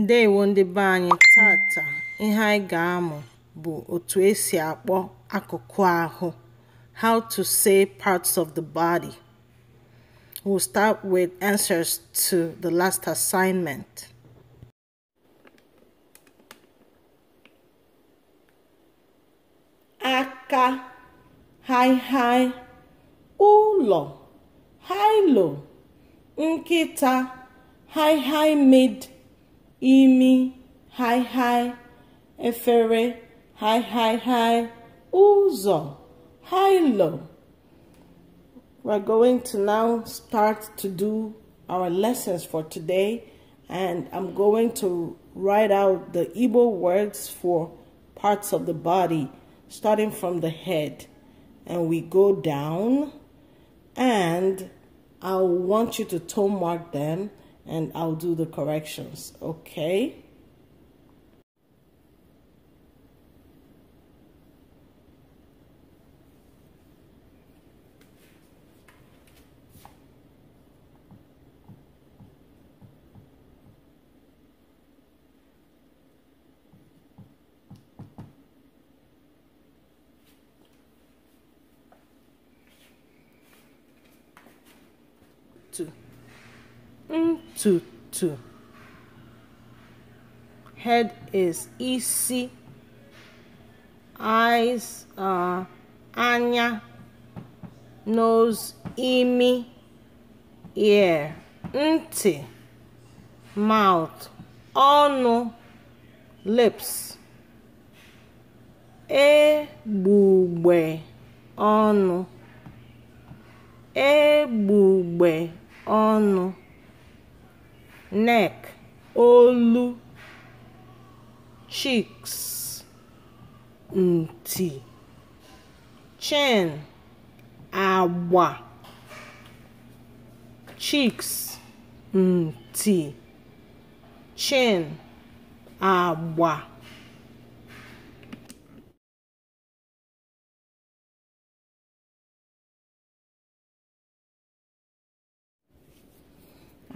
ndewo ndị be anyị tata ihe anyị ga-amụ bụ otu esi akpọ akụkụ ahụ how to say parts of the body we'll start with answers to the last assignment aka haịhaị ụlọ haịlo nkịta haịhaị mid imi, hi hi, efere, hi hi hi, uzo, lo. We're going to now start to do our lessons for today and I'm going to write out the Igbo words for parts of the body starting from the head and we go down and I want you to toe mark them and I'll do the corrections, okay? Two. Ntutu mm, (head is isi), eyes anya, nose (imi), ear (ntị), mouth (ọnụ), lips. Egbugbe ọnụ. Egbugbe ọnụ neck olu cheeks ntì chin àgbà cheeks ntì chin àgbà.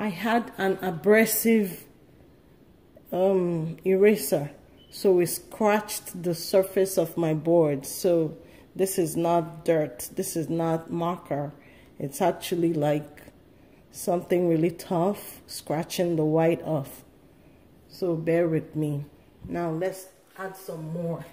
I had an abrasive um, eraser so it scratched the surface of my board so this is not dirt this is not marker it's actually like something really tough scratching the white off so bear with me now let's add some more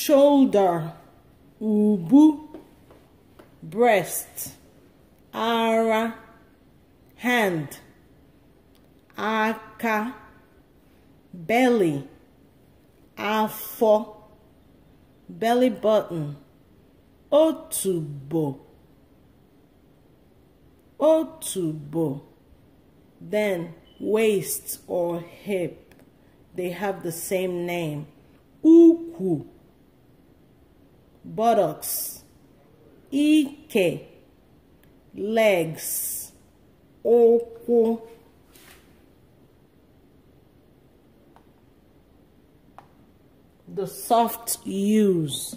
shoulder, ubu, breast, ara, hand, aka, belly, afọ, belly button, otubo, otubo, then waist or hip. They have the same name. uku buttocks, ike, legs, ụkwụ. The soft U's,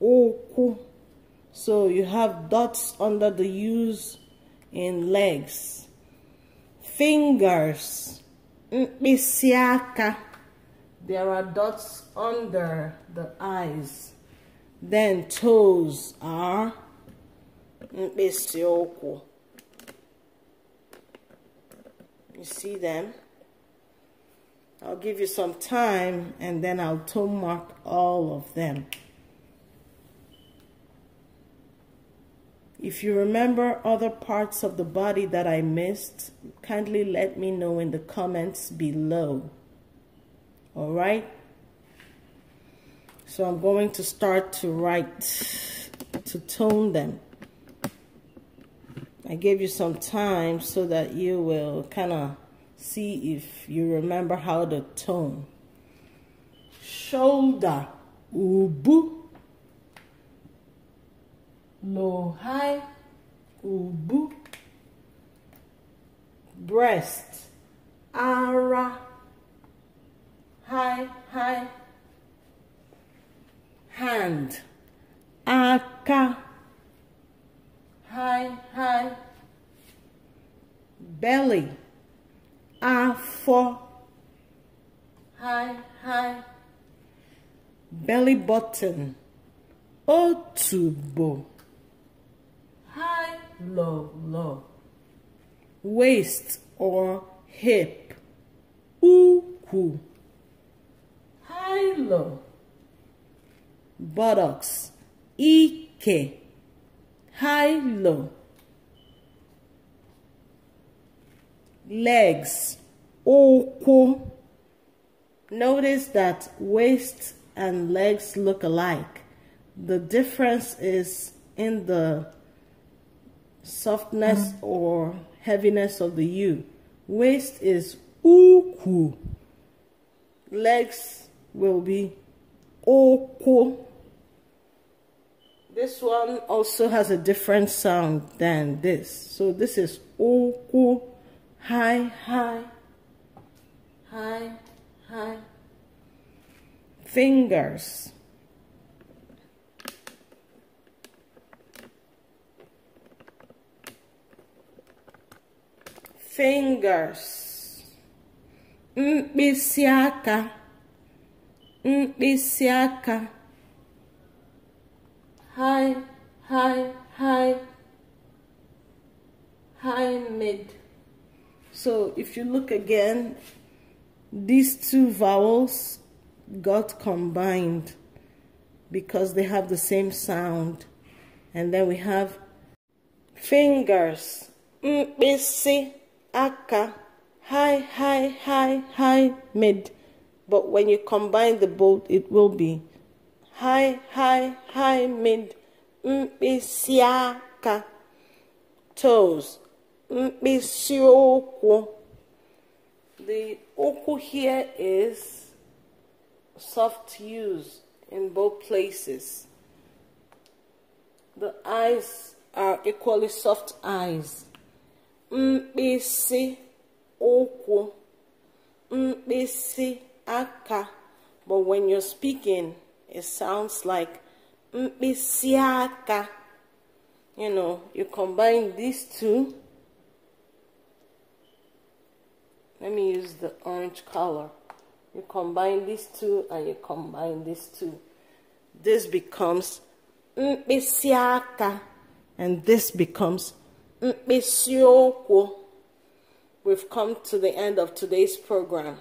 ụkwụ. So you have dots under the U's in legs. Fingers, mkpịsị There are dots under the eyes. Then toes are mkpịsị You see them? I'll give you some time and then I'll toe mark all of them. If you remember other parts of the body that I missed, kindly let me know in the comments below. All right? So I'm going to start to write, to tone them. I gave you some time so that you will kind of see if you remember how to tone. Shoulder, ubu. Low, high, ubu. Breast, ara, high, high hand aka high high belly afọ high high belly button otubo high low low waist or hip ukwu high low buttocks, ike, high low, legs, oko. Notice that waist and legs look alike. The difference is in the softness mm -hmm. or heaviness of the U. Waist is uku. Legs will be oko. This one also has a different sound than this. So this is oku, high, high, high, high. Fingers. Fingers. Mkpịsị aka. Mkpịsị high, high, high, high, mid. So if you look again, these two vowels got combined because they have the same sound. And then we have fingers, mkpisi, aka, high, high, high, high, mid. But when you combine the both, it will be high high mid mkpịsị toes mkpịsị the uku here is soft use in both places the eyes are equally soft eyes mkpịsị ụkwụ aka but when you're speaking it sounds like misiaka. You know, you combine these two. Let me use the orange color. You combine these two and you combine these two. This becomes misiaka, and this becomes mkpisiokwo. We've come to the end of today's program.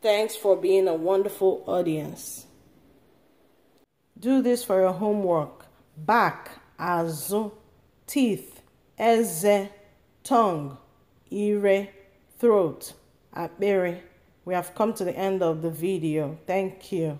Thanks for being a wonderful audience. Do this for your homework. Back, azụ, teeth, eze, tongue, ire, throat, apere. We have come to the end of the video. Thank you.